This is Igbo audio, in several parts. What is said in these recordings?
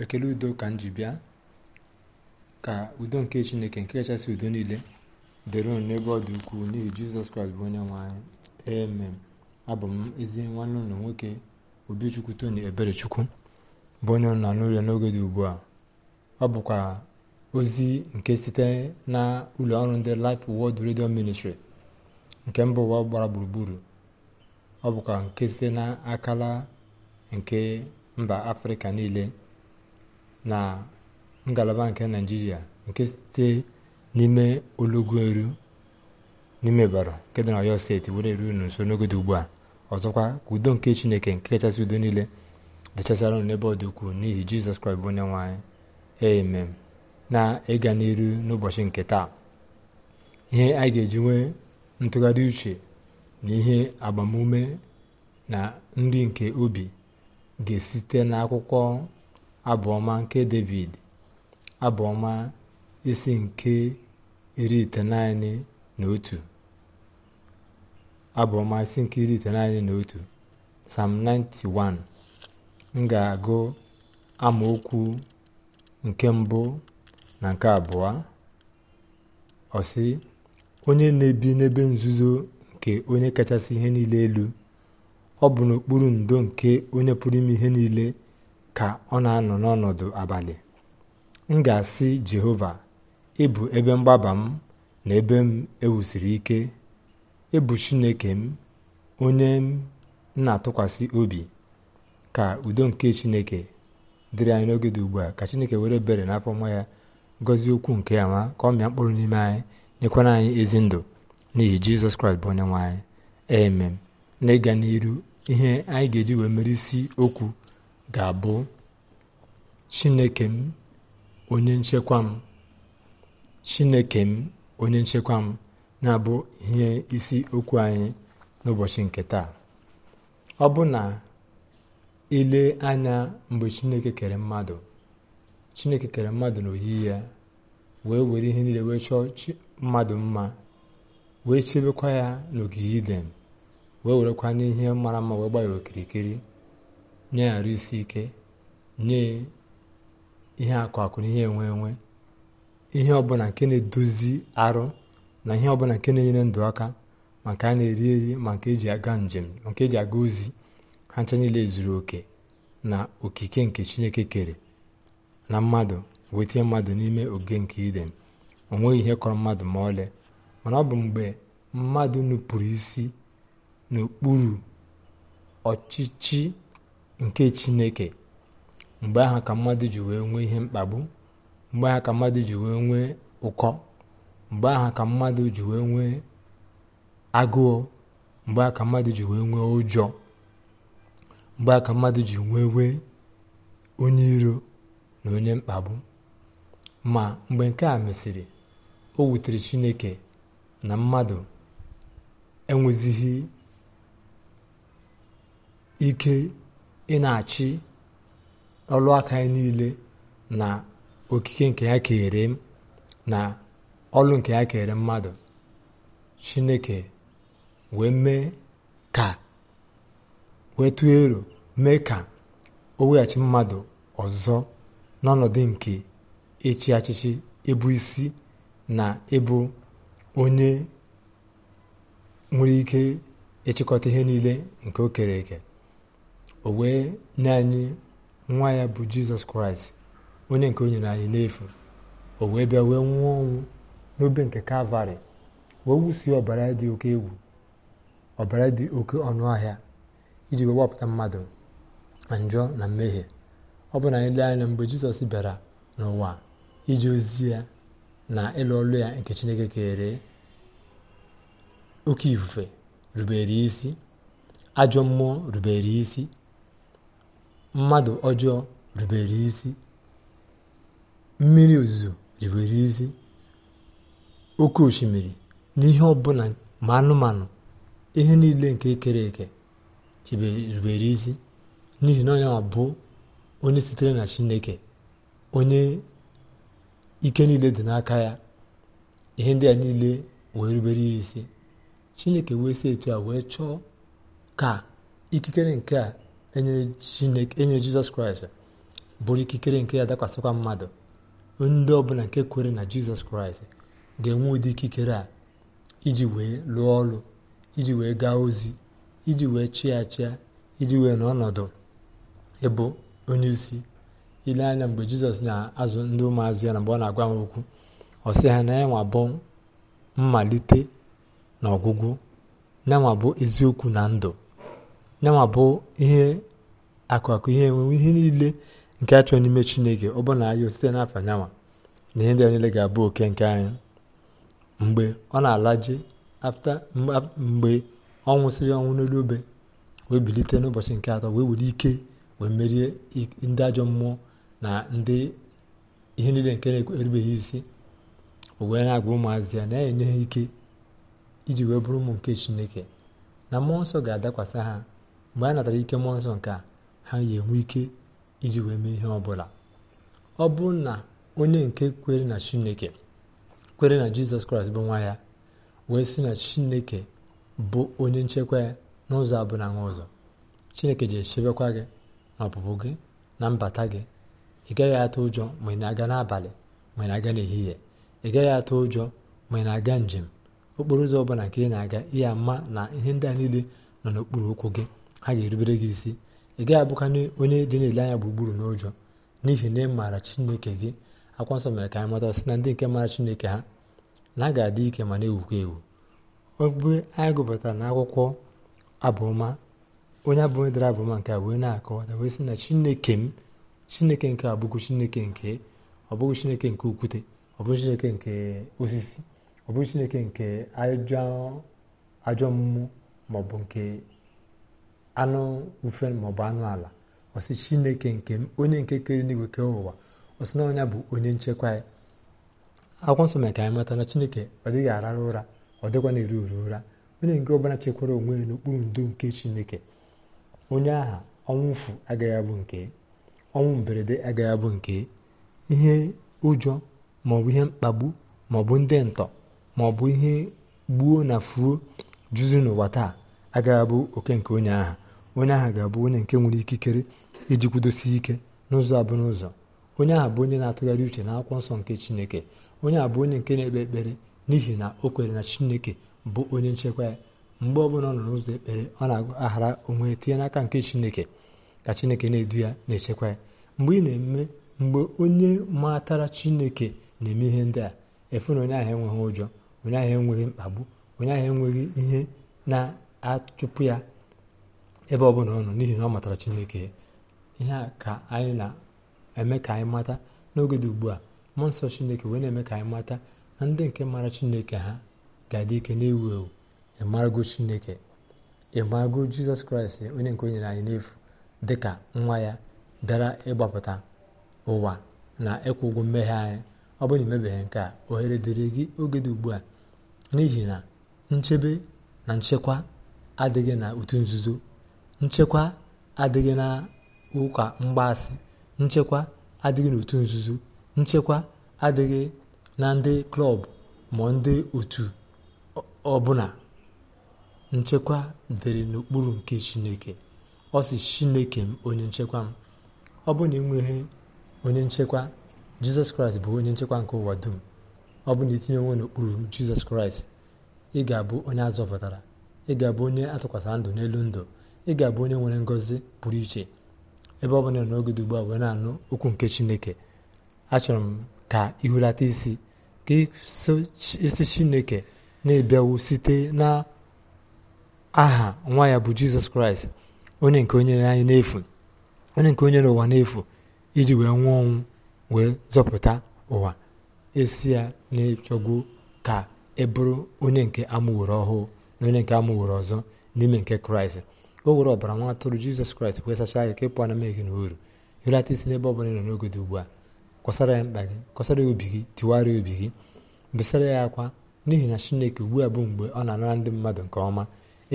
ekele udo ka m ji bịa ka udo nke chineke nke kachasị udo niile dịrị unu n'ebe ọ dị ukwuu n'ihi jizọs kraịst bụ onye nwe anyị amen abụ m ezi nwanne ụlọ nwoke obichukwu ebere eberechukwu bụ onye nọ n'ụlọ n'oge dị ugbu a ọ bụkwa ozi nke site na ụlọ ọrụ ndị Life Word redio Ministry nke mba ụwa gbara gburugburu ọ bụkwa nke site na akala nke mba afrịka niile na ngalaba nke naijiria nke site n'ime olugoru n'ime baro nke dị na oyo steeti were eru unu nso n'ogodo ugbu a ọzọkwa ka udo nke chineke nke kachasị udo niile dịchasara unu n'ebe ọ dị ukwuu n'ihi jizọs kraịst bụ onye nwe na ịga n'iru n'ụbọchị nke taa ihe anyị ga-eji nwee ntụgharị uche na ihe agbamume na nri nke obi ga-esite n'akwụkwọ abụọma nke david abụọma isi nke iri iteghete na otu abụọma isi nke iri iteghete na otu sam 91 m ga-agụ amaokwu nke mbụ na nke abụọ ọsị onye na-ebi n'ebe nzuzo nke onye kachasị ihe niile elu ọ bụ n'okpuru ndo nke onye pụrụ ime ihe niile ka ọ na-anọ n'ọnọdụ abalị m ga-asị jehova ịbụ ebe mgbaba m na ebe m ewusiri ike ịbụ chineke m onye m na-atụkwasị obi ka udo nke chineke dịrị anyị n'oge dị ugbu a ka chineke were bere n'afọ nwa ya gọzie okwu nke ya ma ka ọ mịa mkpụrụ n'ime anyị nyekwara anyị ezi ndụ n'ihi jizọs kraịst bụ onye nwe anyị amen na ịga n'iru ihe anyị ga-eji wee mere isi okwu ga-abụ chineke m onye nchekwa m chineke m onye nchekwa m na-abụ ihe isi okwu anyị n'ụbọchị nke taa ọ bụ na ile anya mgbe chineke kere mmadụ chineke kere mmadụ n'oyiyi ya wee were ihe niile wee chọọ mmadụ mma wee chebekwa ya n'ogige idem. wee werekwa n'ihe mara mma wee gbaa ya okirikiri nye ya arụ isi ike nye ihe akụ akụ na ihe enwe enwe ihe ọbụla nke na-edozi arụ na ihe ọbụla nke na-enyere ndụ aka maka a na-eri eri maka eji aga njem maka eji aga ozi ha ncha niile zuru oke na okike nke chineke kere na mmadụ wee tinye mmadụ n'ime oge nke idem o ihe kọrọ mmadụ ma ọlị mana ọ bụ mgbe mmadụ nupụrụ isi n'okpuru ọchịchị nke chineke mgbe aha ka mmadụ ji wee nwee ihe mkpagbu mgbe aha ka mmadụ ji wee nwee ụkọ mgbe aha ka mmadụ ji wee nwee agụụ mgbe aha ka mmadụ ji wee nwee ụjọ mgbe aha ka mmadụ ji wee nwee onye iro na onye mkpagbu ma mgbe nke a mesịrị o wutere chineke na mmadụ enwezighị ike ị na-achị ọlụ aka niile na okike nke ya kere m na ọlụ nke ya kere mmadụ chineke wee mee ka wee tụọ ero mee ka o weghachi mmadụ ọzọ n'ọnọdụ nke ịchị achịchị ịbụ isi na ịbụ onye nwere ike ịchịkọta ihe niile nke o kere eke o wee nye anyị nwa ya bụ jizọs kraịst onye nke onye na anyị n'efu o wee bịa wee nwụọ ọnwụ n'obe nke kalvarị wee wusie ọbara dị oke egwu ọbara dị oke ọnụ ahịa iji wee wapụta mmadụ na njọ na mmehie ọ bụ na anyị lee anya mgbe jizọs bịara n'ụwa iji ozi ya na ịlụ ọlụ ya nke chineke kere oke ifufe rubere isi ajọ mmụọ rubere isi mmadụ ọjọọ rubere isi mmiri ozuzo rubere isi oke osimiri na ihe ọbụla ma anụmanụ ihe niile nke ekere eke rubere isi n'ihi na onye bụ onye sitere na chineke onye ike niile dị n'aka ya ihe ndị a niile wee rubere isi chineke wee si etu a wee chọọ ka ikikere nke a enyere jizọs kraịst bụrụ ikikere nke ya dakwasịkwa mmadụ ndị ọbụla nke kwere na jizọs kraịst ga-enwe ụdị ikikere a iji wee lụọ ọrụ iji wee gaa ozi iji wee chịa chịa iji wee n'ọnọdụ ịbụ onye isi ile anya mgbe jizọs na-azụ ndị ụmụazụ ya na mgbe ọ na-agwa ha okwu ọ sị ha na ya nwa bụ mmalite na ọgwụgwụ na nwa bụ eziokwu na ndụ yanwa bụ ihe akụakụ ihe enwewe ihe niile nke a n'ime chineke ọ bụrụ na anyị site n'afa nyanwa na ihe ndị a niile ga-abụ oke nke anyị mgbe ọ na-alaje mgbe ọ nwụsịrị ọnwụ n'elu obe wee bilite n'ụbọchị nke atọ wee were ike wee merie ndị ajọ mmụọ na ndị ihe niile nke na-erubeghị isi owee na-agwa ụmụazị ya na-enye ha ike iji wee bụrụ ụmụ nke chineke na mmụọ nsọ ga-adakwasị ha mgbe a natara ike mmụọ nsọ nke a ha ya enwe ike iji wee mee ihe ọbụla ọ bụ na onye nke kwere na chineke kwere na jizọs kraịst bụ nwa ya wee sị na chineke bụ onye nchekwa ya n'ụzọ abụla nwa ụzọ chineke ji echebekwa gị na ọpụpụ gị na mbata gị ị gaghị atụ ụjọ ma ị na-aga n'abalị ma ị na-aga n'ehihie ị gaghị atụ ụjọ ma ị na-aga njem okporo ụzọ ọbụla nke ị na-aga ihe ama na ihe ndị a niile nọ n'okpuru ụkwụ gị ha ga-erubere gị isi ị gaghị abụkana onye dị na-ele anya gburugburu n'ụjọ n'ihi na ị maara chineke gị akwa nsọ mere ka anyị mata sị na ndị nke maara chineke ha na ha ga-adị ike ma na-ewukwa ewu ogbe anyị gụpụtara na akwụkwọ abụma onye onye dara abụma nke a wee na-akọwata wee sị na chineke m chineke nke abụghị chineke nke ọ bụghị chineke nke okwute ọ bụghị chineke nke osisi ọ bụghị chineke nke ajọ mmụọ maọbụ nke anụ mfe maọbụ anụ ala ọsị chineke nke m onye nke kere n'igwe kee ụwa ọsị na ọnya bụ onye nchekwa ya akwụkwọ nsọ mere ka anyị mata na chineke ọ dịghị arara ụra ọ dịkwa na eru uru ụra onye nke ọbụla chekwara onwe ya n'okpuru ndo nke chineke onye aha ọnwụ agaghị abụ nke ọnwụ mberede agaghị abụ nke ihe ụjọ maọbụ ihe mkpagbu maọbụ ndị ntọ maọbụ ihe gbuo na fuo juzi n'ụwa taa agaghị abụ oke nke onye aha onye ahụ ga-abụ onye nke nwere ikikere iji kwudosi ike n'ụzọ abụọ n'ụzọ onye ahụ bụ onye na-atụgharị uche na akwụkwọ nsọ nke chineke onye ahụ bụ onye nke na-ekpe ekpere n'ihi na o kwere na chineke bụ onye nchekwa ya mgbe bụla ọ nọ n'ụzọ ekpere ọ na-aghara onwe ya tinye n'aka nke chineke ka chineke na-edu ya na-echekwa ya mgbe ị na-eme mgbe onye matara chineke na-eme ihe ndị a efu na onye ahụ enweghị ụjọ onye ahụ enweghị mkpagbu onye ahụ enweghị ihe na-achụpụ ya ebe ọ bụla ọnụ n'ihi na ọ matara chineke ihe a ka anyị na-eme ka anyị mata n'oge dị ugbu a mmụọ nsọ chineke wee na-eme ka anyị mata na ndị nke mara chineke ha ga-adị ike na-ewu ewu ịmarago chineke ịmarago jizọs kraịst onye nke onyere nyere anyị n'efu dị ka nwa ya bịara ịgbapụta ụwa na ịkwụ ụgwọ mmehie anyị ọ bụrụ na imebeghị nke a ohere dịrị gị oge dị ugbu a n'ihi na nchebe na nchekwa adịghị na otu nzuzo nchekwa adịghị na ụka mgbaasị nchekwa adịghị n'otu nzuzo nchekwa adịghị na ndị klọb ma ndị otu ọbụla nchekwa dịrị n'okpuru nke chineke ọ si chineke m onye nchekwa m ọ bụ na enweghị onye nchekwa jizọs kraịst bụ onye nchekwa nke ụwa dum ọ bụ na itinye e onwe n'okpuru jizọs kraịst ị ga-abụ onye azọpụtara ị ga-abụ onye ndụ n'elu ndụ ị ga-abụ onye nwere ngọzi pụrụ iche ebe ọ bụla n'oge dị ugbu a wee na-anụ okwu nke chineke achọrọ m ka ihulata isi ka isi chineke na-ebịawo site na aha nwa ya bụ jizọs kraịst onye nke onye anyị n'efu onye nke onye n'ụwa n'efu iji wee nwụọ ọnwụ wee zọpụta ụwa esi ya na-echọgwu ka ị e bụrụ onye nke amụworo ọhụụ na onye nke amụworo ọzọ n'ime nke kraịst o were ọbara nwa atụrụ jizọs kraịst wee sachaa gị ka ịpụ na mmehie gị na oru ịrata isi n'ebe ọbụla ịnọ n'oge dị ugbu a kwasara ya mkpa gị kwasara ya obi gị ya obi gị besara ya akwa n'ihi na chineke ugbu a bụ mgbe ọ na-anara ndị mmadụ nke ọma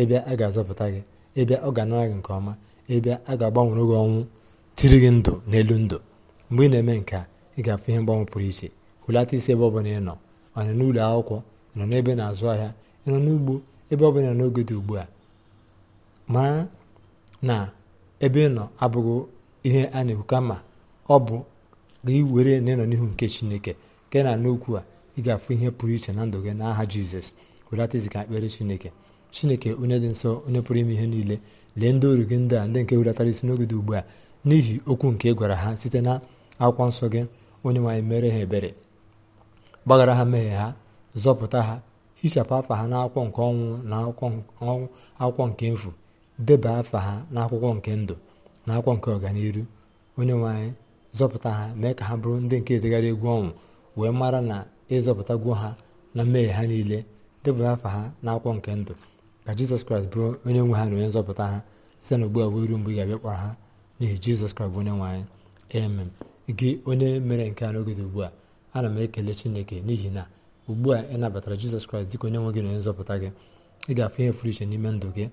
ịbịa a ga-azọpụta gị ịbịa ọ ga-anara gị nke ọma ịbịa a ga-agbanwere gị ọnwụ tiri gị ndụ n'elu ndụ mgbe ị na-eme nke a ị ga-afụ ihe mgbanwe pụrụ iche hulata isi ebe ọbụla ịnọ ọ n'ụlọ akwụkwọ nọ n'ebe na-azụ ahịa ịnọ n'ugbo ebe ọbụla n'oge dị ugbu a ma na ebe nọ abụghị ihe a na-ekwu kama ọ bụ gị were na ịnọ n'ihu nke chineke nke na n'okwu a ị ga-afụ ihe pụrụ iche na ndụ gị n'aha jizọs welata izika ekpere chineke chineke onye dị nsọ onye pụrụ ime ihe niile lee ndị oru gị ndị a ndị nke welatara isi n'oge dị ugbu a n'ihi okwu nke gwara ha site na akwụkwọ nsọ gị onye nwaanyị mere ha ebere gbaghara ha mmehie ha zọpụta ha hichapụ afa ha n'akwụkwọ nke ọnwụ na akwụkwọ nke mfu deba afa ha n'akwụkwọ nke ndụ na akwụkwọ nke ọganihu onye nwe anyị zọpụta ha mee ka ha bụrụ ndị nke edegara egwu ọnwụ wee mara na ịzọpụtagwo ha na mmehie ha niile deba afa ha n'akwụkwọ nke ndụ ka jizọs kraịst bụrụ onye nwe ha na onye nzọpụta ha site na ugbu a wee ruo mgbe ị ga-abịa kpọrọ ha n'ihi jizọs kraịst onye nwe anyị emem gị onye mere nke a n'oge dị ugbu a ana m ekele chineke n'ihi na ugbu a ị nabatara jizọs kraịst dịka onye nwe gị na onye nzọpụta gị ị ga-afụ ihe furu iche n'ime ndụ gị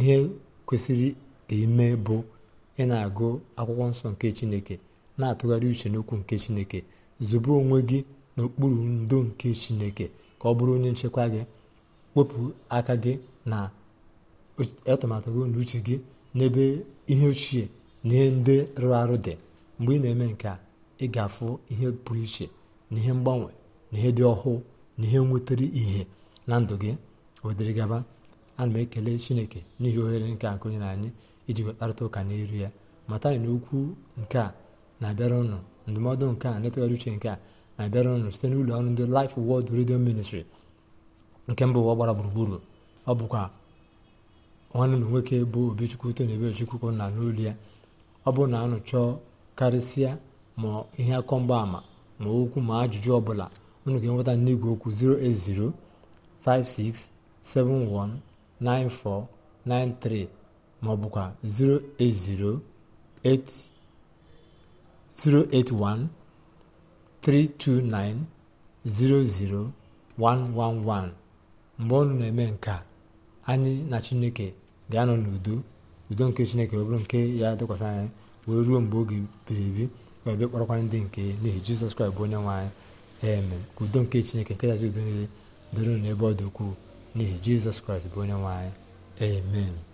ihe kwesịrị ka ime bụ ị na-agụ akwụkwọ nsọ nke chineke na-atụgharị uche n'okwu nke chineke zụbe onwe gị n'okpuru ndo nke chineke ka ọ bụrụ onye nchekwa gị wepụ aka gị na atụmatụ gị na uche gị n'ebe ihe ochie na ihe ndị rụrụ arụ dị mgbe ị na-eme nke a ị ga-afụ ihe pụrụ iche na ihe mgbanwe na ihe dị ọhụụ na ihe nwetara ihe na ndụ gị wdgaba ana m ekele chineke n'ihi ohere nke a na anyị iji wekparịta ụka n'iru ya mata na okwu nke a na-abịara ụnụ ndụmọdụ nke a na uche nke a na-abịara ụnụ site n'ụlọ ọrụ ndị Life Word redio Ministry nke mba ụwa gbara gburugburu ọ bụkwa nwanne ụlọ nwoke bụ Obichukwu na Ebelechukwu na n'olu ya ọ bụrụ na anụ chọọ karịsịa ma ihe akọ mgbaama ma okwu ma ajụjụ ọbụla unu ga-enweta n'igwe okwu 5671. 9493 maọbụkwa ọ bụkwa 329 mgbe ọnụ na-eme nke a anyị na chineke ga-anọ n'udo udo nke chineke ọ bụrụ nke ya dịkwasị anyị wee ruo mgbe oge biri ebi ka ebe kpọrọkwara ndị nke n'ihi jizọs kraịst bụ onye nwanyị anyị eme ka udo nke chineke nke yazi udo niile dịrị n'ebe ọ dị ukwuu n'ihi jizọs kraịst bụ onye nwe amen